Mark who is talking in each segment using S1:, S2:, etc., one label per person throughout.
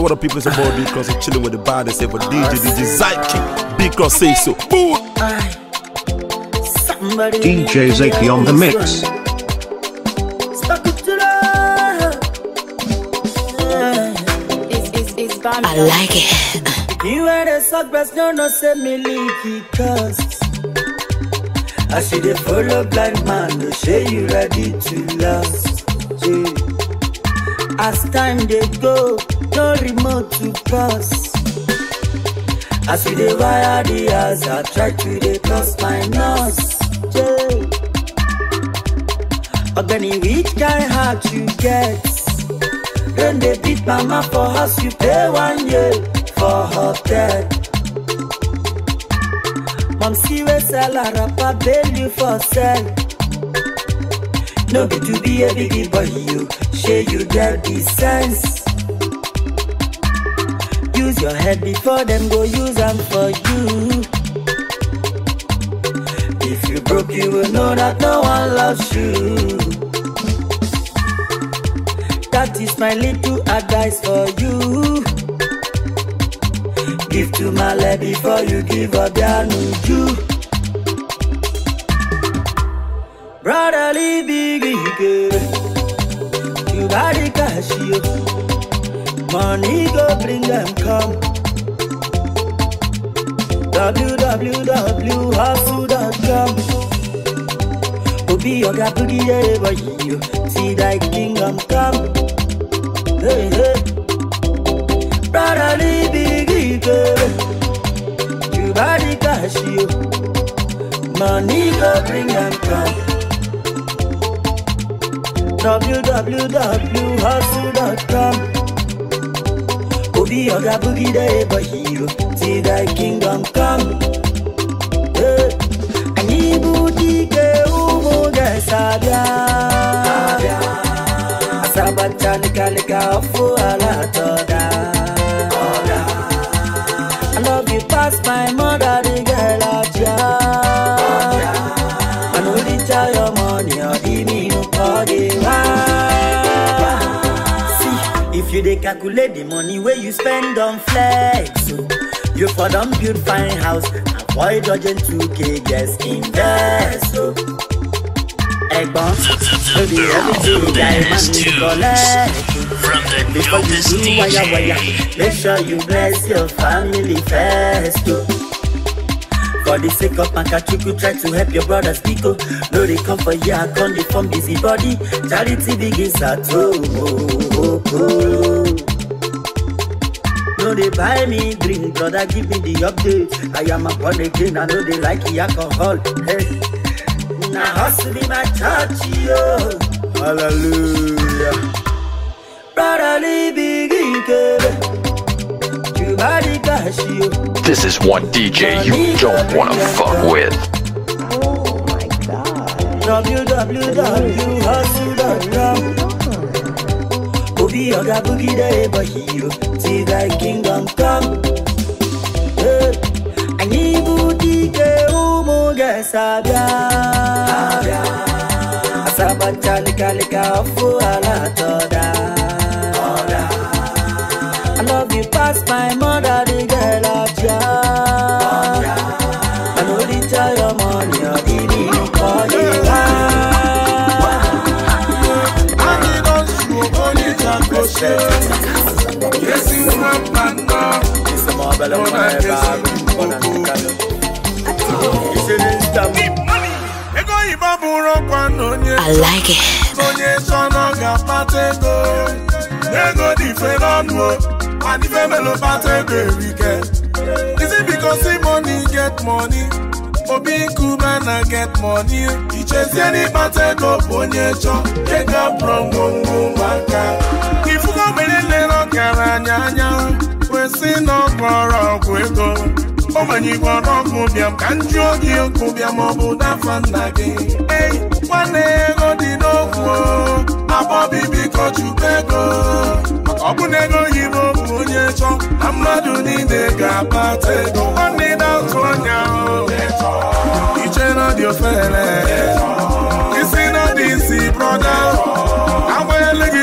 S1: And what the people say about because I'm chilling with the band, they say for DJ, DJ Zyke, because say so.
S2: Boom. DJ Zaki on the mix. I like it. You ain't a suck no, no, send me leaky cause I see the full of blind man, no say you ready to last. Yeah. as time dey go no remote to cross as we dey wire the house i try to dey cross my nose ọgbẹni which kind heart you get rain dey beat mama for house you pay one year for hotel. mom see wey sell her wrapper bail you for sell no be to be a big boy you. say you get the sense. Use your head before them go use them for you. If you broke, you will know that no one loves you. That is my little advice for you. Give to my love before you give up your new brotherly big girl. carry cash yo. Money go bring them come. www.hustle.com Obi oga put it over you. See thy kingdom come. Hey, hey. Brotherly big You body cash yo. Money go bring them come. www.hustle.com Obi Oga Boogie the ever hero See thy kingdom come ọfụ I love you past my mind you dey calculate the money where you spend on flex, so you for don build fine house, avoid dodging 2k, just invest. So. Egbon, so the everything guy man is collect. From the Before dopest you do wire wire, make sure you bless your family first. So. Oh. For the sake of Pankachuku, try to help your brothers Pico. Oh. No, they come for ya, come they form busy body. Charity begins at home. Oh, oh, oh. oh no buy me drink, I give me the update. I am a born again, I know they like the alcohol. Hey, now hustle be my church, yo. Hallelujah. Eh.
S3: this is one DJ you don't wanna eh. fuck with. Oh
S2: my god. www.hustle.com be oga boogie day but see that kingdom come eh, anyị bụ dike ụmụ ga-esabịa asaba nchalikalika ọfụ ala I love you past my mother set. Yes, you want man now. It's a marvel of my bag. One and the canoe. It's an instant. I like it. Is it because the money get money? obi nkume na get money ichezie n'ịkpata ego bụ onye chọ ego from ngwongwo ụmụaka ọgaranya anya kwesị na ọgbọrọgwụ ego ogbenye igbo ọnọgwụ bịam ka nju oge okwu bịam ọ bụ n'afọ nna gị ei nwanne ego dị n'okwu abọbi biko chukwu ego ọ bụ na ego yibo bụ onye chọ na mmadụ niile ga-akpata ego nwanne na otu ọnya iche na dị ofere isi na dị isi brọda agwa ele gị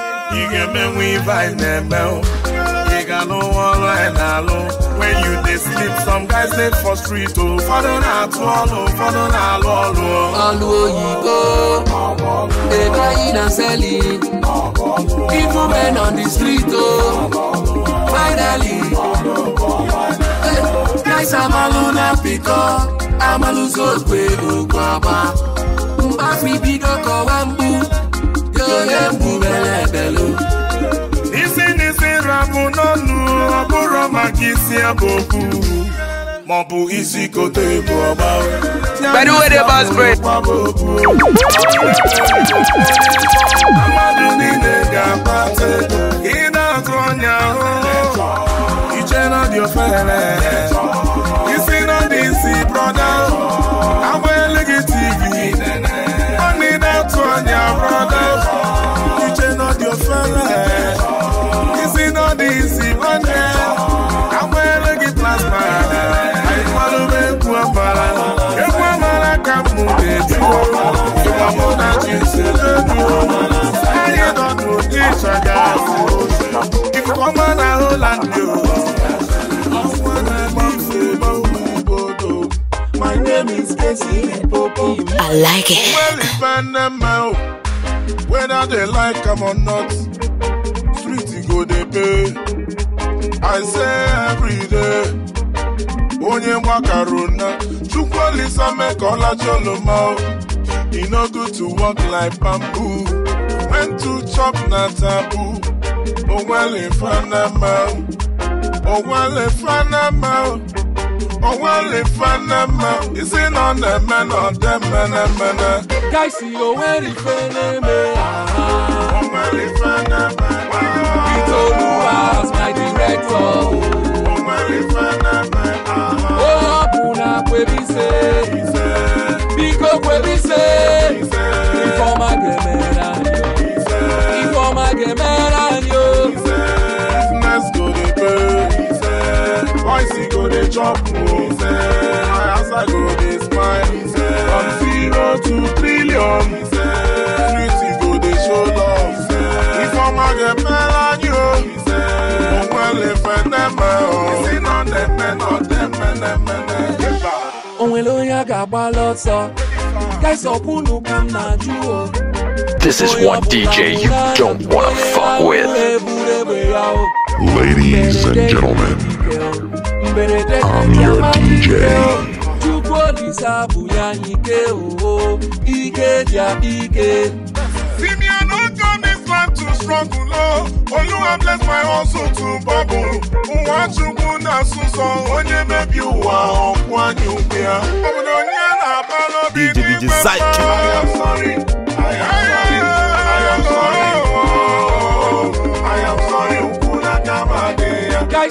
S2: ị ga-emenwe ibe anyị na-eme ị ga-alụ ọrụ anyị when you dey sleep some guys dey for street o ụfọdụ na-atụ ọlụ ụfọdụ na-alụ ọlụ ọlụ oyibo
S3: dey buying and selling even men on the street o finally guys amalụ na pịkọ amalụzi ogbe ogwe agba mgbe afọ ibido kọwa mgbu na-egbu belebelu isi n'isi
S2: rabụ n'ọnụ
S3: Pẹ̀lú wẹ́dẹ bá spray.
S2: Amadu niile ga I like it. Well, if whether they like them or not, street go they pay. I say every day. onye mgbakaruna chukwuolisa make ọlacholoma e no good to walk like bamboo when talk na taboo. Onwale Fanama. Onwale Fanama. Onwale Fanama. Is it on the man or the man? man? Guys, see Onwale Fanama. Onwale Fanama. Itoluwa's my director. Onwale Fanama. Oh, Buna Kwebise. Biko Kwebise. chop go smile from zero to trillion beauty go show love
S3: This is one DJ you don't want to fuck with. Ladies and gentlemen, mberede ama ike chukwu olise abụ ya oo ike dị ike
S2: Oluwa bless my hustle to bubble. Nwa Chukwu na-asụsọ onye mebi ụwa ọkwụ anyị Obodo onye na-abalọ bi n'ime mma.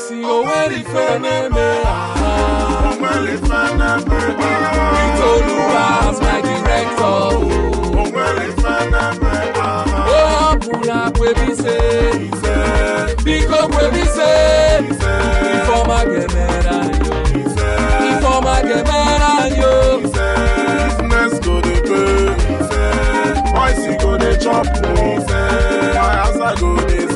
S2: si oweri feneme oweri feneme Itoluwa as my director oweri feneme o ọbụla kwebise biko kwebise ifeọma ga-emere anyị ifeọma ga-emere anyị o. business go dey pay boys go dey chop o my house go dey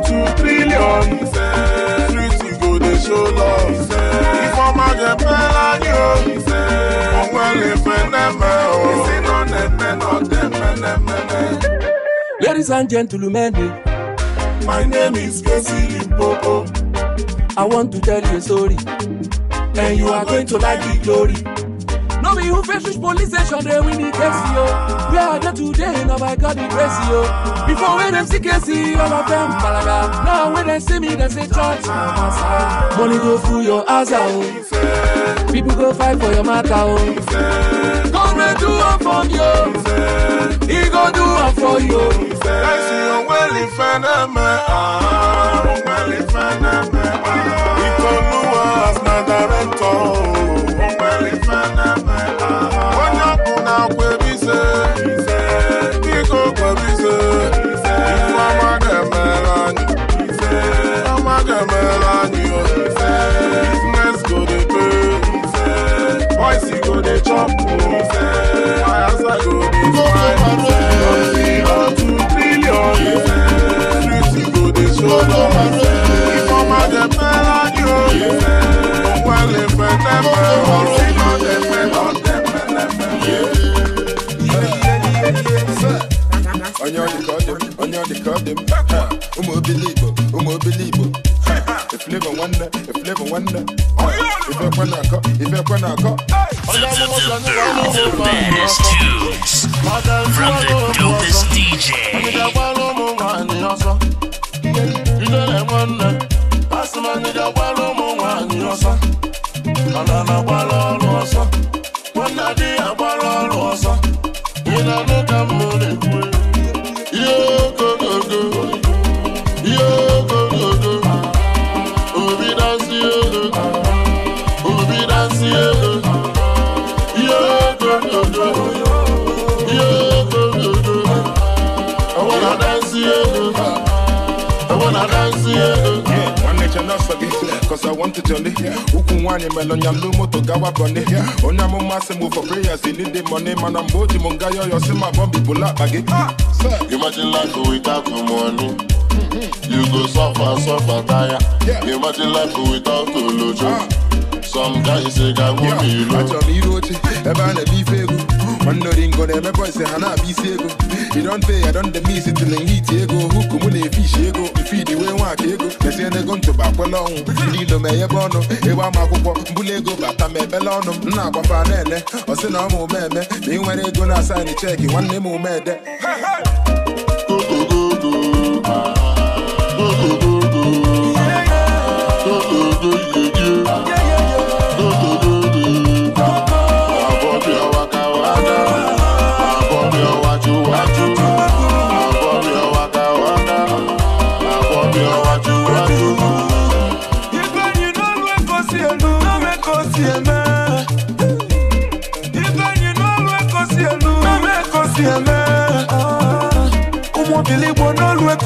S2: two trillion ìfẹ́ street go dey show love ìfẹ́ ìfọ̀mọ̀gẹ̀pẹ̀ láyé o ìfẹ́ òun ẹ̀rẹ̀ fẹ́ nẹ́mẹ̀ o ìsínà nẹ́mẹ̀
S1: náà dẹ́mẹ̀ nẹ́mẹ̀. Ladies and gentlemen, my name is Casey Limpopo. I want to tell you a story, and you are going to like the glory
S3: you fit reach police station, they win the taxi, yo. Where are there today? Now I got the grace, yo. Before when them see KC, all of them balaga. Now when they see me, they say church, Money go through your ass, oh. People go fight for your matter, oh.
S2: God will do it for you. He go do it for you. I see you well in front of me, ah, well in front of me, ah. He told Luas, not director, oh. on your record on your record Um believe, um believe. If live wonder, if live wonder. If I wanna go, if I wanna go. The best tunes from the dopest DJ. jolly. Ukun wani melon yam no moto gawa bunny. Onya mo masse move for prayers, they need the money, man. I'm boji munga yo yo see my bombi bula ah, Imagine life without the money. You go suffer, suffer, tire. Imagine life without the lojo. Ah. Some guys say, God, won't be you. I tell me, Rochi, about a beef, nwanneoringo na-emekwa ise ha na-abịa isi ego idonte ya don dem isi tili ego huku mụ na-efishi ego mfidi wee nwaka ego mesie n'ego ntụba ọnwụ ndị ilo meghebe ọnụ ịgba m akwụkwọ mbụla ego bata ma ebele ọnụ m na-agbafa na ele ọsị na ọmụ ome eme na ị nwere ego na asaịnị cheki nwanne m omede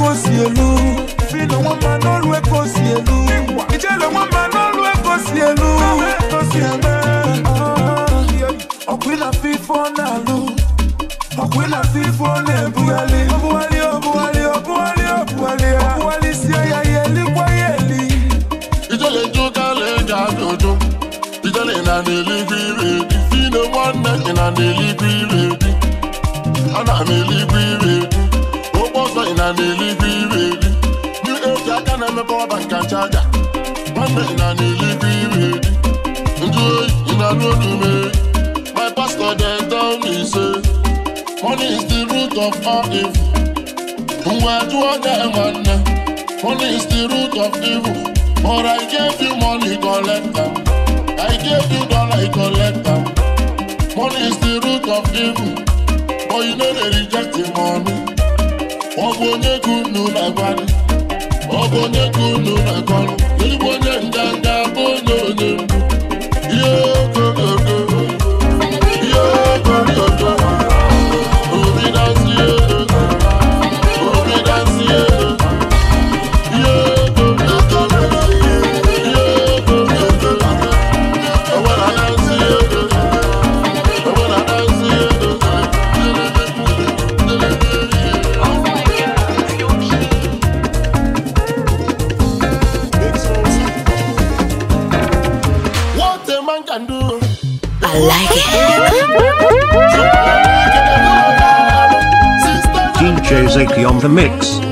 S2: ekosi elu filo wọn ma n'olu ekosi elu ìjẹlẹ wọn ma n'olu ekosi elu ekosi elu ah, ọkwila fifo n'alu ọkwila fifo n'ebughali obughali obughali obughali obughali obughali si ẹyà yẹli kwayeli. ìjẹlẹ jókàlẹ jà jọjọ ìjẹlẹ nà nílí gbìrì ìfínà wọn nà nà nílí gbìrì. kọwa banka nchaga nwanne na na-elibe ire ndị know to me. my pastor then tell me say money is the root of all evil Where do I get money Money is the root of evil but i gave you money collector. i gave you dollar collector. money is the root of evil but you know they reject the money ọ bụ you gị unu ọ bụ onye ka unu na-akọrọ ezigbo onye ndanda the mix.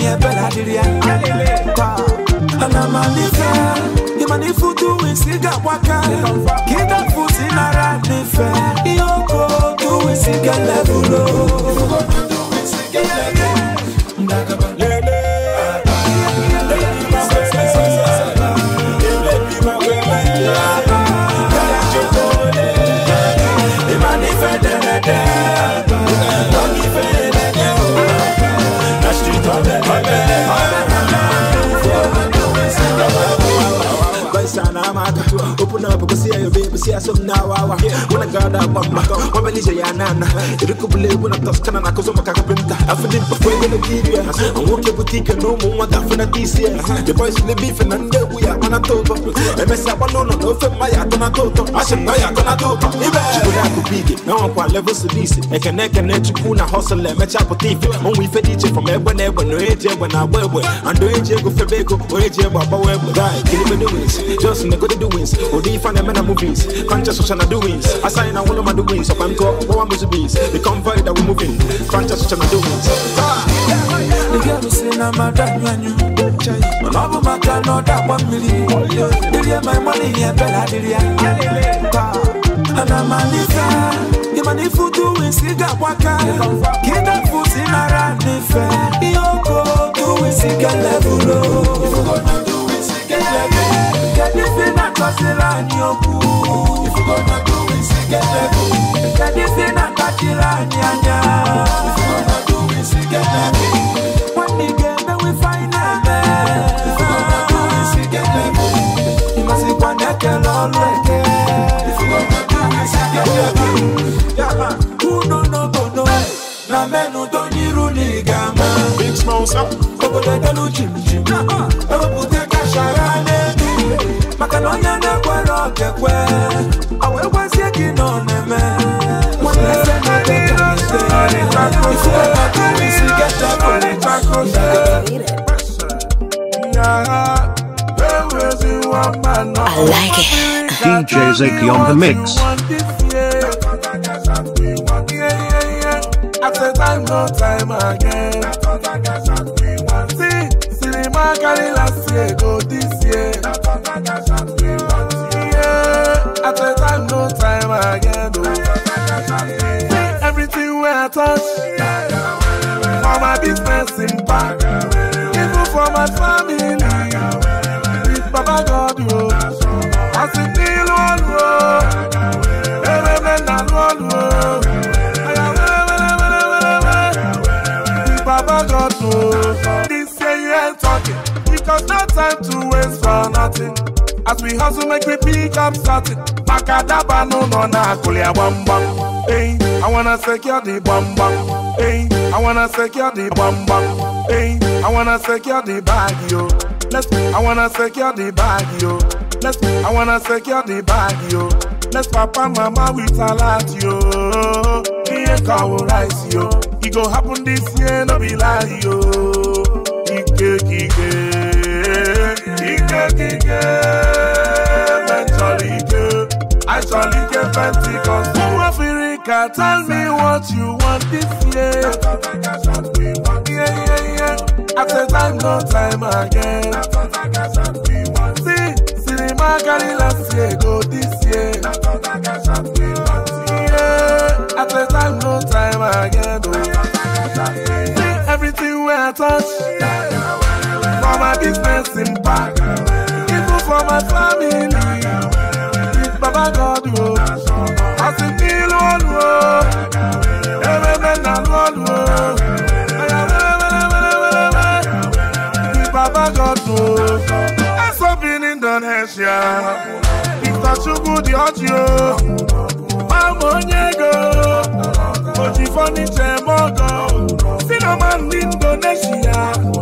S2: ye bela diri ya Anamalife Imanifutu waka
S1: so now awa When I got up on my When I say ya nana Iriko bule when I toss kana na kozo makaka pinta I feel it before when I give ya I won't get with you no more what I feel at this year The boys in the beef and I'm there we are on a total And I say no no no fem my at on a total I should know ya gonna do Ibe Chikula ku big Now I'm quite level sedisi Eke neke ne chikuna hustle and match up with thief On we fed each from ebwe nebwe no eje when I wewe And do eje go febeko O oh, eje baba wewe Guy, kill me the wins O di fan and men Conscious social doings. I sign all of my doings. So I'm go, go on busy beans. The convoy that we're moving. Conscious social doings. Nigga, my dad, man, you. Mama,
S2: my dad, no, that one million. Nigga, my money, yeah, Bella, nigga. Ana manika, imani futu wisiga waka Kida futi na ranife Yoko, tu wisiga levulo Yoko, tu wisiga levulo Kadisi nakosila nyoku If you gonna do it, say get level Kadisi nakatila nyanya If you gonna do it, say get level When we get there, we find a man eh. If you gonna do it, say get level Imasi kwa neke lolweke If you gonna do it, say get level Yama, uno no bono eh, Na menu donyiru ligama Big smoke, sir Kobo de delu chim chim Ewa pute I
S4: like it. DJ Ziggy on the mix.
S2: time, again. touch for my business impact even for my family with baba god o as in ní ìlú ọ̀lù Every man nà lù ọ̀lù o baba god o this year talking because no time to waste for nothing as we hustle make we pick up something makadaba no no na akụlia gbamgbam Hey, I wanna secure the gbamgbam Hey, I wanna secure the gbamgbam Hey, I wanna secure the bag yo let's I wanna secure the bag yo let's I wanna secure the bag yo let's papa mama with salat yo ihe ka ọ rice yo e go happen this year no be lie yo ike ike. kekeke Mentalite Actualite Pentecost Who Africa tell me what you want this year Yeah yeah yeah After time no time again See cinema carry last year go this year Yeah After time no time again See everything where I touch yeah. my business impact, even for my family. It's Baba God, oh. I see feel one, oh. Everything I oh. want, It's Baba God, oh. I'm so being in Indonesia. It's a sugar, the audio. I'm on your go. But if I need to, go. See, I'm in Indonesia.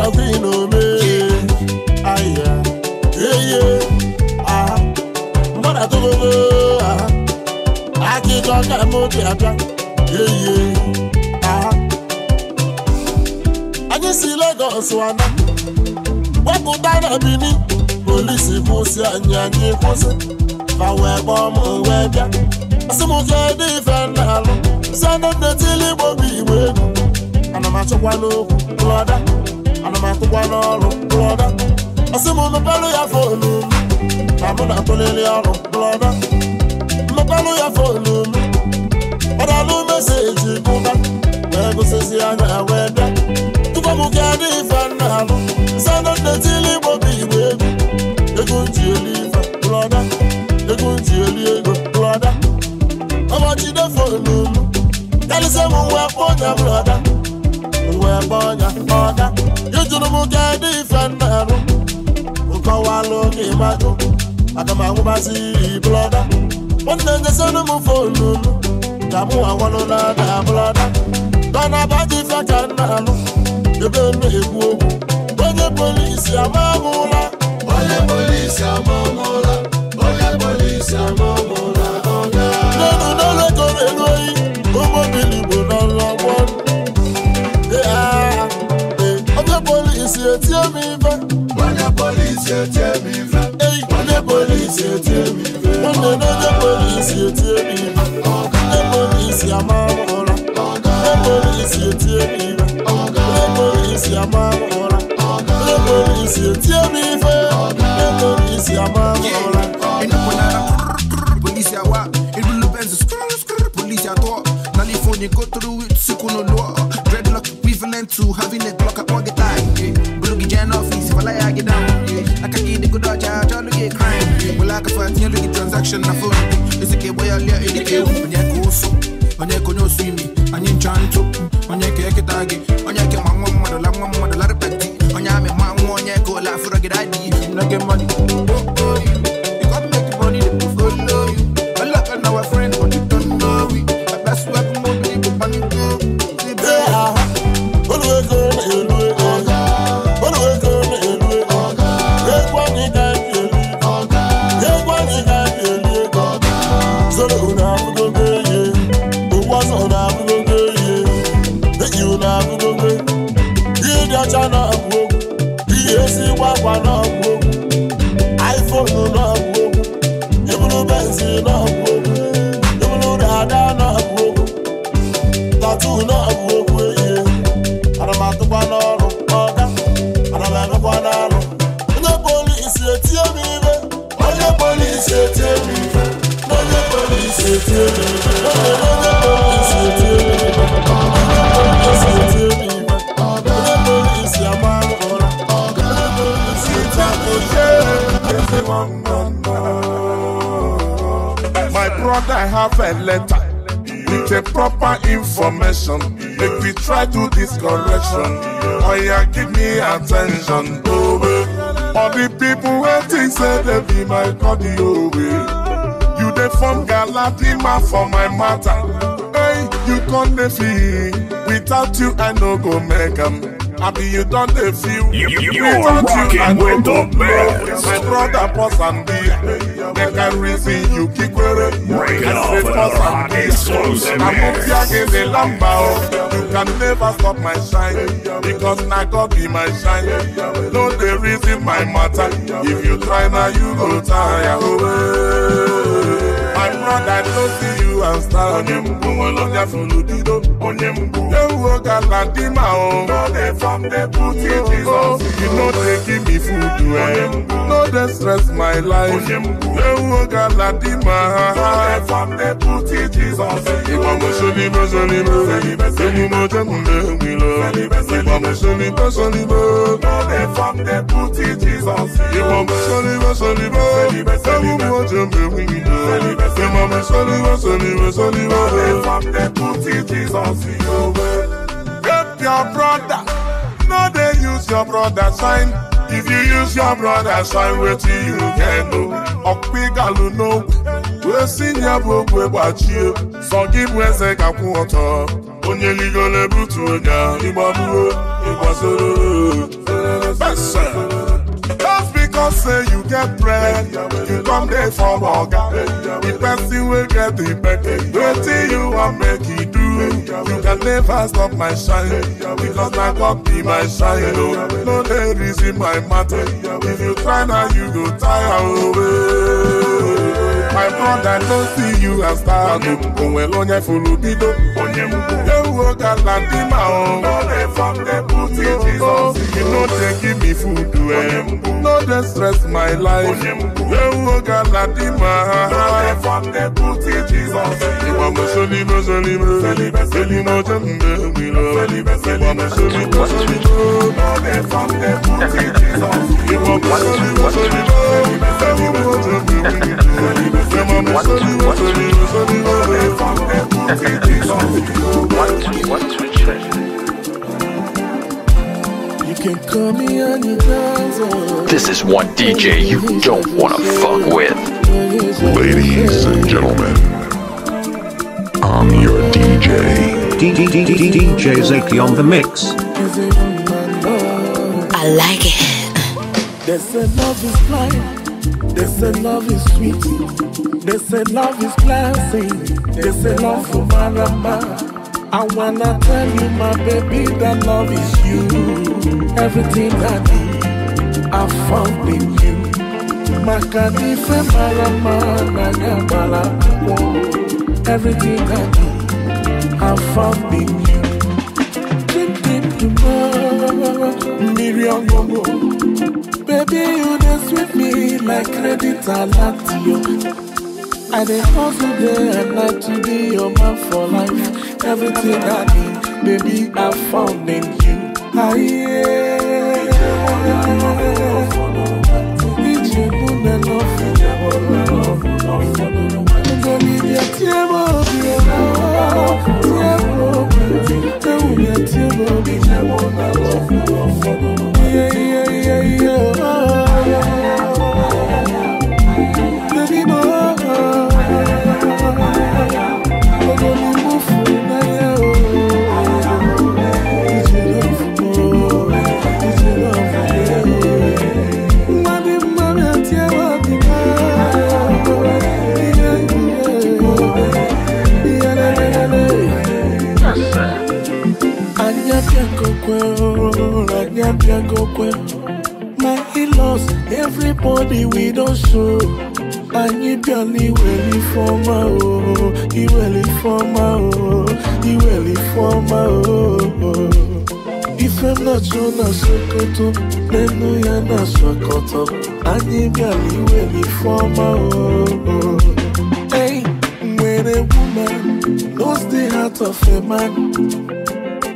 S2: nothing no me. Ah yeah, yeah yeah. Ah, mother to go ah. I keep on that Yeah yeah. Ah, I just see Lagos one. What could I Police force and yanny force. Fa we bomb we bia. Asimu kedi fenalo. Send them the tilly bobi brother ana m akụkwa n'ọrụ blọda ọsị m mepelụ ya fonu m na mụ na-akụlili ọrụ blọda mmepelụ ya fonu m ọdalụ meseji bụba wee gụsịsị anya wee bịa tupu m ga dị ife nna alụ sanda nnetili igbo bụ igbo egwu ego nji eli ife blọda ego nji eli ego blọda ọbọchị defonu m karịsịa m nwa kpọ ọnya blọda na-agba ọnya ọga ijuru m ka dị ife nnarụ nkọwalụ ka ịmajụ aga m anwụbazi blọda nwanne nyesịnụ m fonu nu ka mụ anwanụ na ada blọda dọna baji ife ka nnalụ ebe m na-ekwu okwu onye polisi amamụla onye polisi amamụla onye polisi amamụla ọga n'elu n'elu ekoro elu oyi polisi etí mi fẹ́. wọ́n ní polisi etí mi fẹ́. wọ́n ní polisi etí mi fẹ́. wọ́n ní lójú polisi etí mi fẹ́. wọ́n ní polisi àmàmọ́ra. wọ́n ní polisi etí mi fẹ́. wọ́n ní polisi àmàmọ́ra. wọ́n ní polisi etí mi fẹ́. wọ́n ní polisi
S1: àmàmọ́ra. inú kò náírà polisi àwa ìlú lóbẹ́nsì polisi àtọ́ nálífóònù go through it sùkúnù lọ́ọ̀ dreadlock equivalent to having a Glock at pocket. crime, Well, I can find you transaction na phone. It's a kid are in the cave. When you go so, when you go no swimming, and you chant to, when you get a when you get my mother, la mother, la petty, when you have you go for a good idea, money.
S2: I have a letter with a proper information. Make we try to this correction. Oh yeah, give me attention. Oh, eh. All the people waiting said they be my cardio. Oh, eh dey form galadima for my matter hey you con dey feel without you i no go make am abi you don dey feel you, you, you without you i no go know my brother pause am be make i reason you kikwere i say pause am be amobiage dey lamba o oh. you can never stop my shine because na god be my shine no dey reason my matter if you try na you go tire. Oh, I'm not that close to you and star. Onye mgbu nwere ya soludido. Onye mgbu. Ewu oga na di o. No dey from the booty Jesus. You no dey give me food well. Eh. No dey stress my life. Onye mgbu. Ewu oga na di No dey from the booty Jesus. Ìgbà mo ṣolíbẹ̀ ṣolíbẹ̀. Ẹni mo jẹ́ mo lé mi lọ. Ìgbà mo ṣolíbẹ̀ ṣolíbẹ̀. No dey from the booty Jesus. Ìgbà mo ṣolíbẹ̀ ṣolíbẹ̀. Ewu mo jẹ́ mo lé mi lọ. Say, Mama, Soliva, Soliva, Soliva. They from the put Jesus in your way. Help your brother. No, they use your brother's sign. If you use your brother's sign, wait till you can know. Okpigalu no. Wesi nyabo kwe bachie. Sọgibwe se kakwu ọtọ. Onye ligole butu onya. Igbamuo, igbasoro. Bẹ́sẹ̀. talk say you get bread you come dey for oga the person will get the bed wetin you wan make it e do you can never stop my shine because na God be my shine oh. No, no there is in my matter if you try now, you go tire o. Oh, eh. my brother no see you as star onwere onye furu bido ewu oge ala dị ma o you no dey give me food eh no dey stress my life ewu oge ala dị ma ha ìgbàmọ̀sọ́líbẹ̀ sọ́líbẹ̀ sẹ́límọ̀ jẹ́ ǹdẹ́ ìgbìlọ̀ ìgbàmọ̀sọ́líbẹ̀ sọ́líbẹ̀ ìgbàmọ̀sọ́líbẹ̀ sọ́líbẹ̀ sẹ́límọ̀ jẹ́ ǹdẹ́ ìgbìlọ̀ this
S3: is one DJ you don't wanna
S4: fuck with. Ladies and gentlemen, I'm your DJ. DJ Zaki on the mix.
S2: I like it. They said love is blind. They say love is sweet. They say love is classy. They say love for marama. I wanna tell you, my baby, that love is you. Everything I do, I found in you. Makadife marama na nyamala. Everything I do, I found in you. Dream, dream, tomorrow, miri ongongo day you dance with me like credit alert yo. I dey hustle day and night to be your man for life. Everything I need, baby, I found in you. I ah, oh, yeah, yeah, yeah, yeah. Nani oh. iwe lifoma o, oh. iwe lifoma o, oh. iwe lifoma o Ifem na jo na sokoto, nenu ya na sokoto Anyị bịara iwe forma o Hey, when a woman knows the heart of a man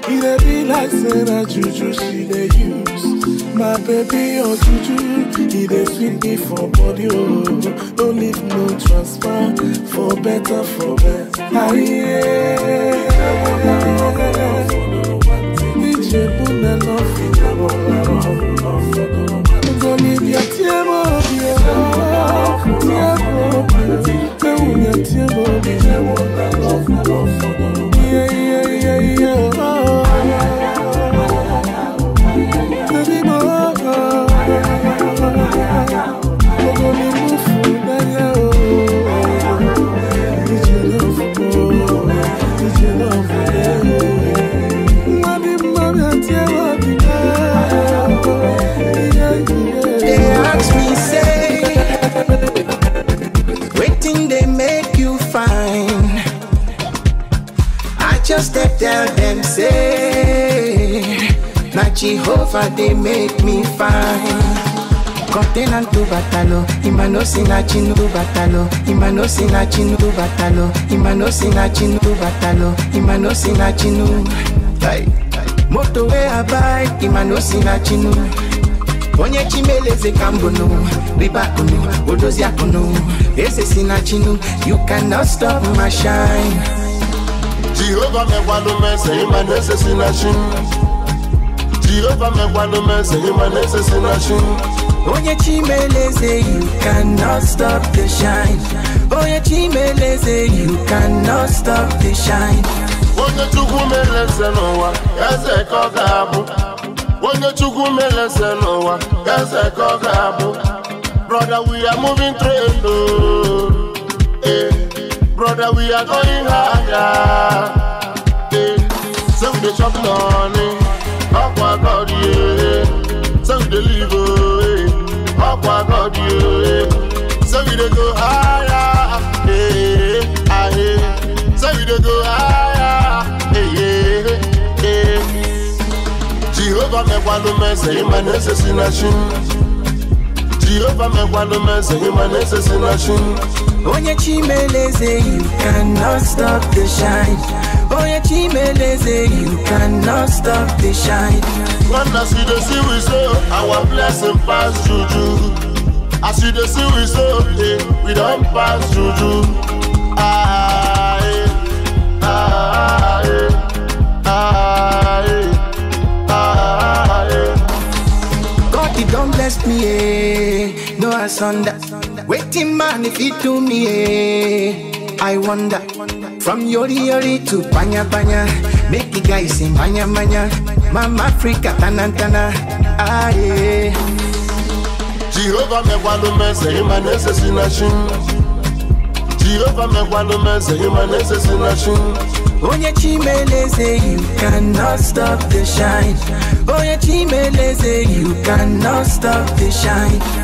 S2: It be like Sarah Juju she dey use my baby, oh Juju, he dey sweet me for body, oh. No leave no transfer, for better, for best. Aye, yeah. Ijebu na love, Ijebu na love. Go leave your table, yeah. Yeah, go. Go leave your table, yeah.
S1: Jehovah they make me fine. Continent to batalo, imano sinachin to batalo, imano sinachin to batalo, imano sinachin to batalo, imano sinachinu. a we abai, imano sinachinu. Onye chimeleze kambono, riba kunu, odozia kunu, ese sinachinu. You cannot stop my shine. Jehovah me walume, say imano sinachinu jehova megwalo meze imanese sinashi onye chimeleze you cannot stop the shine onye chimeleze you cannot stop the shine onye chukwu meleze n'ụwa eze ka ọ ga-abụ
S2: onye chukwu meleze n'ụwa eze ka ọ ga-abụ brother we are moving train o eh brother we are going higher eh say we dey chop money ọkwa god yeah we deliver. live eh. god yeah So we go higher eh eh, eh. we go higher eh eh jehova
S1: mekwado mese ịma na-ese si na chi jehova mekwado mese ịma na-ese si na you cannot stop the shine Boy, Chimeleze, you cannot stop the shine. When I see the sea, we say, our blessing pass juju. I see the sea, we
S2: say, we don't pass juju. Ah,
S1: eh, ah, eh, ah, eh, ah, eh. God, he don't bless me, eh. No, I sunder. Waiting man, if he do me, eh. I wonder. From Yori Yori to Panya Panya, make the guys sing Banya Banya, Mama Africa Tanantana, ah yeah. Jehovah me walume eh, se imane eh, se sinashin. Jehovah me walume eh, se imane se sinashin. Onye Chimeleze, you cannot stop the shine. Onye Chimeleze, you cannot stop the shine.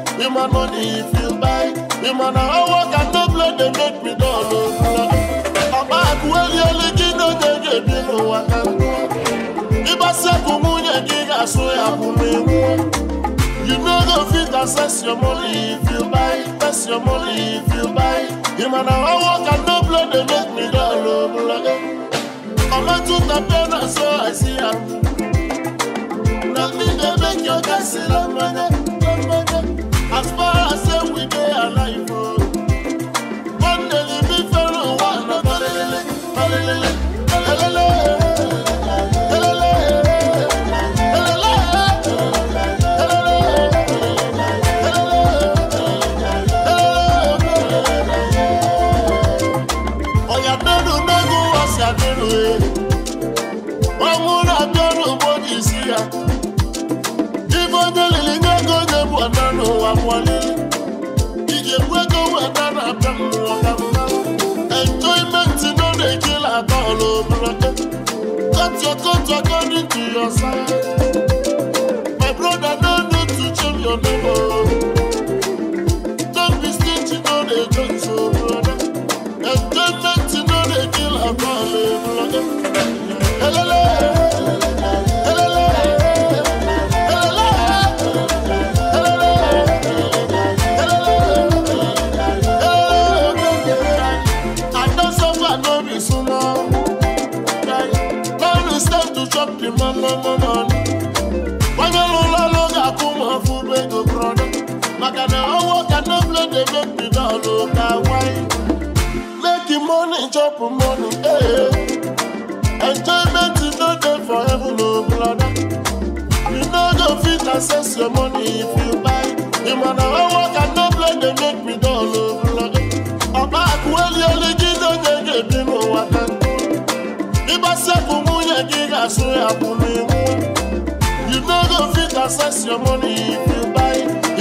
S2: Human money if you buy. Human man a work and no blood they make me don know. Bàbá àkúwélé olókì ló gègé bí mo wà ká. come on mú yẹn kí àsun àbú mi wú. You no go fit access your money if you buy. Access your money if you buy. You man a work and no blood they make me don't know. Mama took the pen and so I see her. Nothing they make your guy see love money. dey cut according to your size. My brother, no need to change your name. maka na ọnwụ ka nable na-eme mbido ọlụ ka nwanyị leki moni chọpụ moni ee eh. enjoyment no dey for heaven o oh, brother you no go fit access your money if you buy ị ma na ọnwụ ka nable na-eme mbido ọlụ brother ọkpa akụ eli olu gị n'onye ga-ebi n'ụwa ka ịgbasiakụ nwunye gị ga-asụ ya bụ n'iwu you no go fit access your money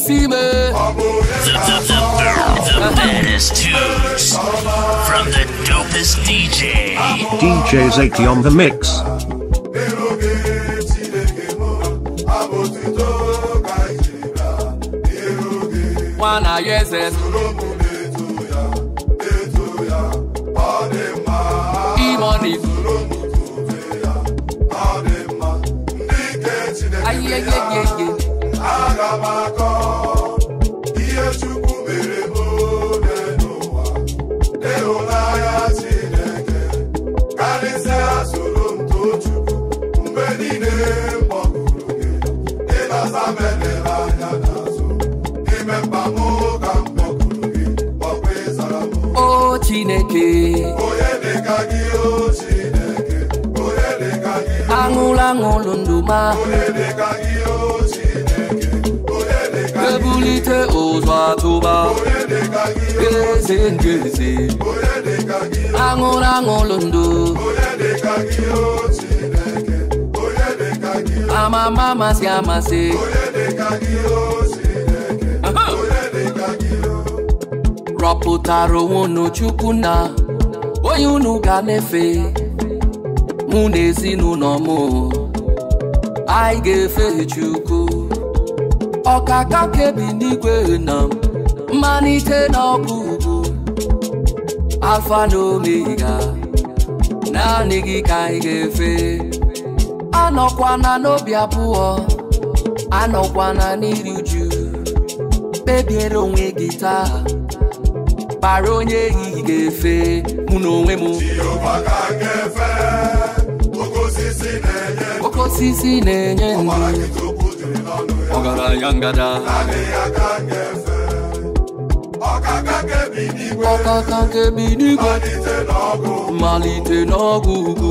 S3: Deceiver. The, the, the, the, baddest tunes from the dopest DJ.
S4: DJ Zaki on the mix.
S3: One o oh, chineke aṅụla aṅụlụ ma ebulite ụzọ atụba eze ama mama si amasị rọpụtara onwe unu chukwu na onye unu ga na-efe mụ na ezinụlọ m anyị ga-efe chukwu ọkaka kebi n'igwe na mmalite na ọgwụgwụ Afa na omega naanị gị ka anyị ga-efe na n'obi abụọ na n'iri uju kpebiere onwe gị taa kpara onye ehihie ga-efe mụ na onwe m oke na-enye ọgaranya ngada ọkaka nkebi n'igwe malite n'ọgwụ ugwu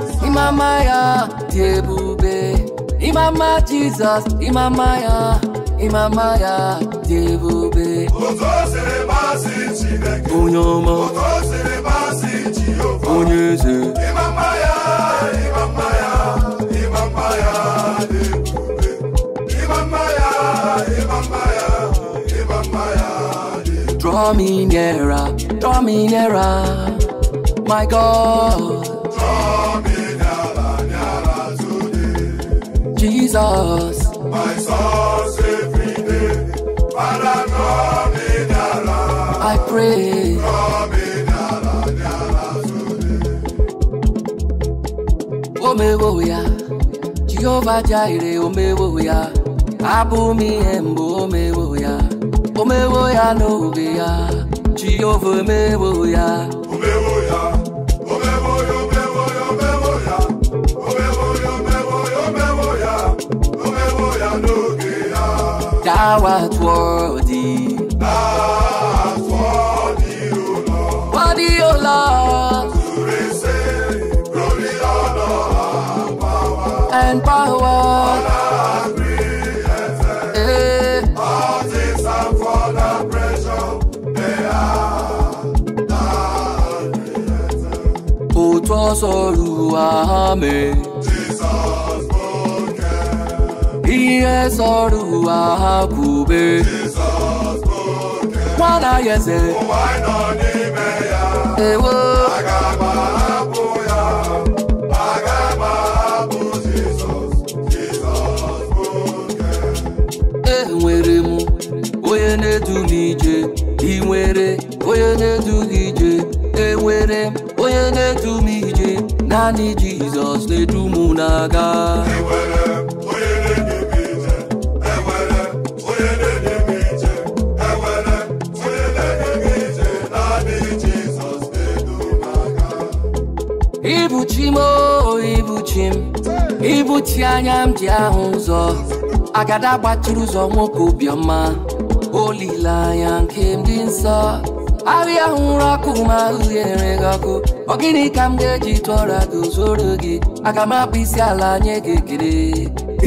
S3: Imamaya, Debube. Imama Jesus, Imamaya, Imamaya, Debube. Onyoma, Onyeze. Imamaya,
S2: Imamaya, Imamaya, Debube.
S3: Imamaya, Imamaya, Imamaya, Debube. Draw me nearer, draw me nearer, my God. Draw Jesus. My
S2: source every day, Father, come in
S3: I pray. Come in today. Omewo ya, Jehovah Jireh, Omewo ya, Abumi Embo, Omewo ya, Omewo ya no be ya, Jehovah Omewo ya. Our worthy. Our worthy, O Lord. Worthy, O Lord. To receive glory, honor, power. And power. Honor, greatness. Eh. All
S2: things are for the pressure. They are the
S3: greatness. Òtún sọ̀rọ̀ àmì. ihe sọrọ ụwa ha kwube nwana ya eze ewo enwere m onye na-edu ije ị nwere onye na-edu gị ije enwere m onye na-edu m ije naanị Jizọs na-edu m na-aga ibuchim o oh, ibuchim ibuchi anya m ji ahụ ụzọ agada gbachiri ụzọ nwoke obiọma olileanya nke m dị nsọ ahịa hụrụ ọkụ ma uhie gị ọkụ ọ gịnị ka m ga-eji tụọra gị zoro gị aga m akpụ isi ala nye gị ekele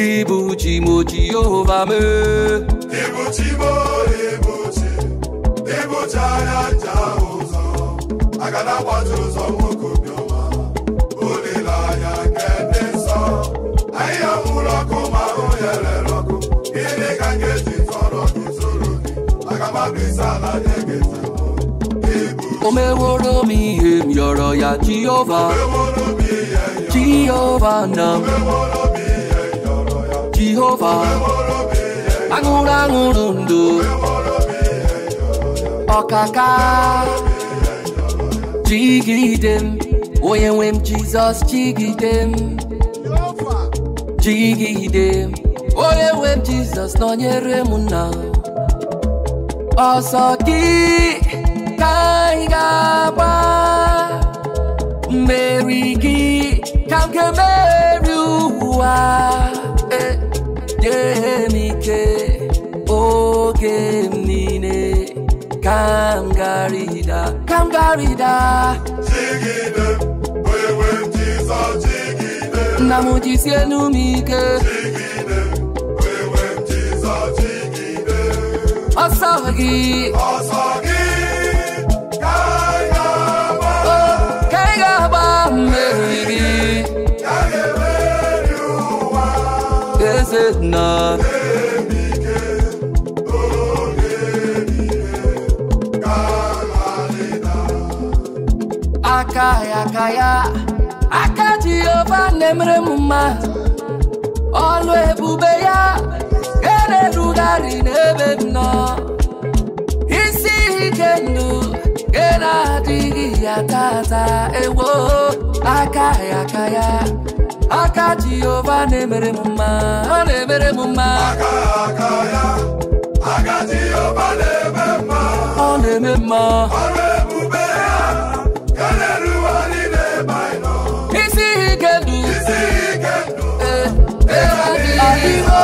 S3: ibuchi m oji yehova mee ibuchi m ibuchi ibuchi anya
S2: ncha ụzọ agada gbachiri ụzọ
S3: omeworo mi em yọrọ ya jehova jehova na jehova aṅụrụ aṅụrụ ndụ ọkaka jigide m onye nwe m jizọs jigide m jigide m onye nwe m nọnyere m na ọsọ ka ba, Mary mmeri gị ka m ga-emeri ụwa nye m ike eh, oge oh, m niile ka m garịda ka m garịda jigide wewe Jizọs jigide nna m jisienu m ike jigide wewe Jizọs jigide ọsọ gị ya ya ka ya aka Jehova na ọlụ ebube ya kere erughari n'ebe nọ isi ike ndụ ga adighi ya tata ewo Akaya, ya ka ya aka Jehova na-emere m mma ọ na-emere m mma aka ya aka Jehova na-eme mma ọ na-eme mma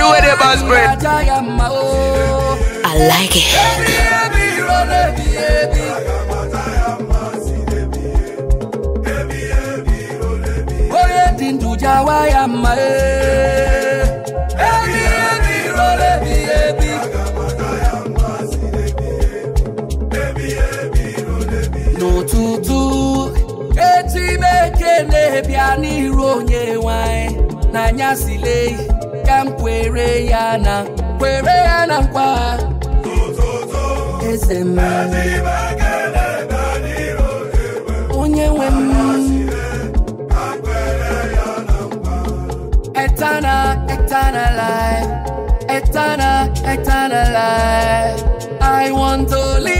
S3: the way they boss I like it. ya mma ebi ebi ebi ka m kwere ya na kwere ya na nkwa eternal eternal life eternal eternal life i want to live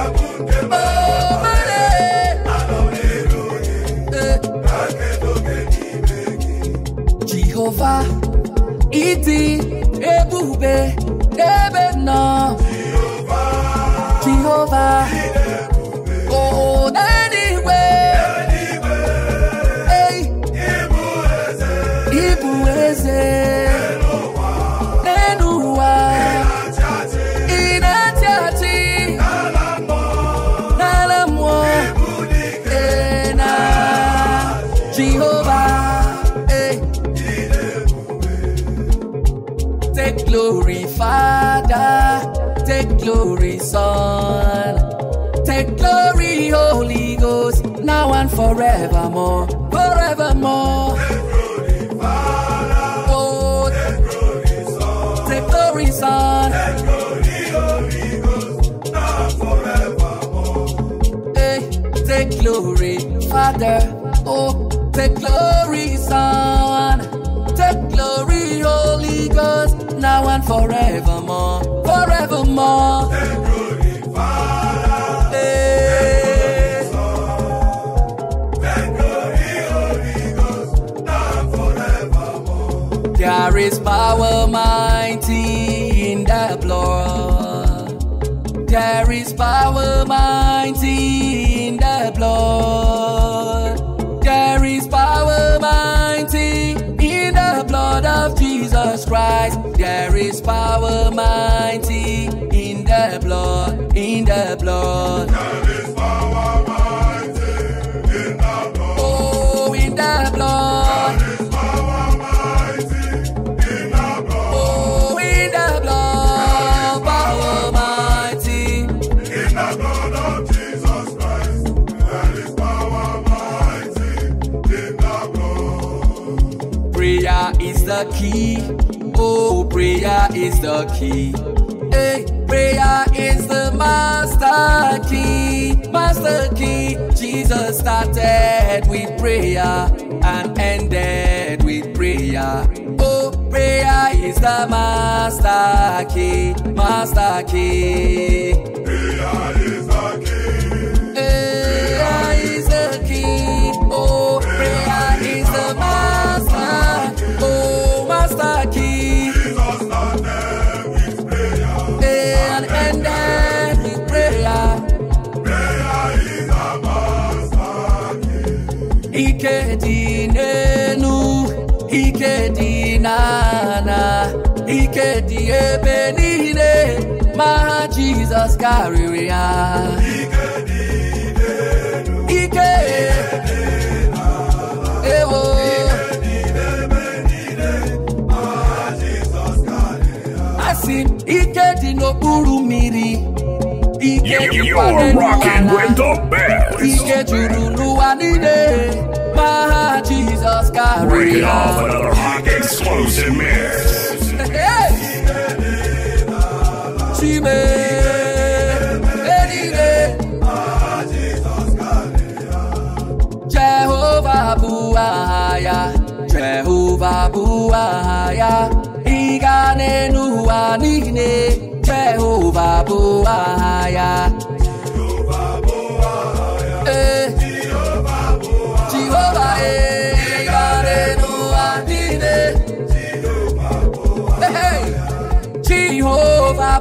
S3: fa ìdí ebú Father. Oh, take glory, Son. Take glory, Holy Ghost, now and forevermore. Forevermore. Take eh. glory, Father. Hey. There is power mighty in the blood. There is power mighty is power mighty in the blood, in the blood. There is power mighty in the blood. Oh, in the blood. There is power mighty in the blood. Oh, in the blood. Power mighty in the blood of Jesus Christ. There is power mighty in the blood. Prayer is the key. Oh, prayer is the key. Hey, prayer is the master key. Master key. Jesus started with prayer and ended with prayer. Oh, prayer is the master key. Master key. Prayer ebe are ma ha jizọs karịrị ya ike ewo asị m ike dị n'okpuru mmiri ike juru n'ụwa niile ma ha Jehovah Buaya, Jehovah Buaya, Igane Nuanine, Jehovah Buaya.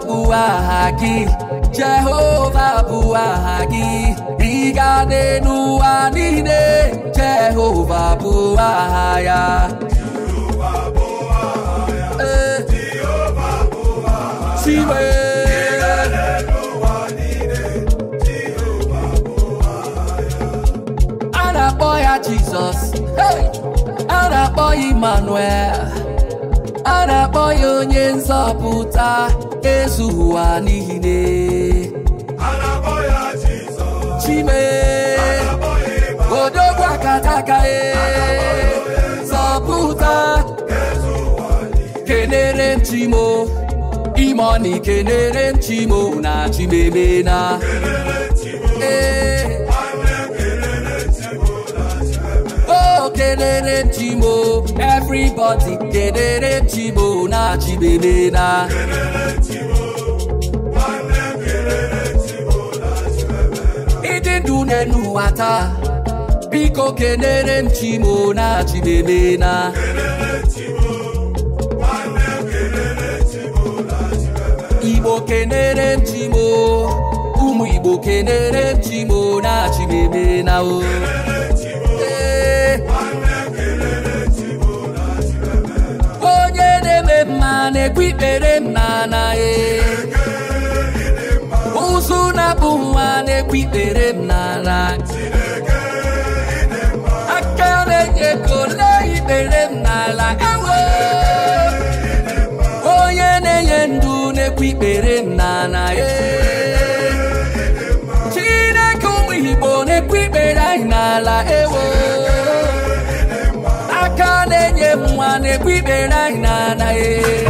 S3: Buagi, Jehovah Buagi, Igane Nuanine, Jehovah Buaya. Eh,
S2: Siwe.
S3: Jesus, hey, I'll boy Emmanuel, I'll boy onye nzọpụta. ezughị ụwa n'ihi ne chime odogwu akata aka e, zọpụta kenere m chimo ime ọ na ikenere m chimo na chimeme na ee dedere chimo everybody dedere chimo na chibebe na ịdị ndụ n'elu ụwa biko kenere m chimo na chibebe na igbo kenere m chimo ụmụ igbo kenere chimo na chibebe na na-ekwu na e ụzụ na-abụ nwa na-ekwu ikpere mma na aka na-enye ego lee ikpere m n'ala ewe onye na-enye ndụ na-ekwu ikpere m na na e Chineke ụmụ Igbo na-ekwu ikpere anyị n'ala ewe na-enye nwa na-ekwu ikpere anyị na anaghị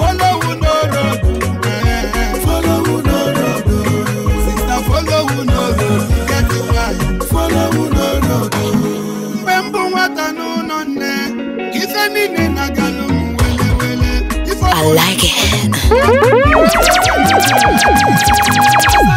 S2: I like it.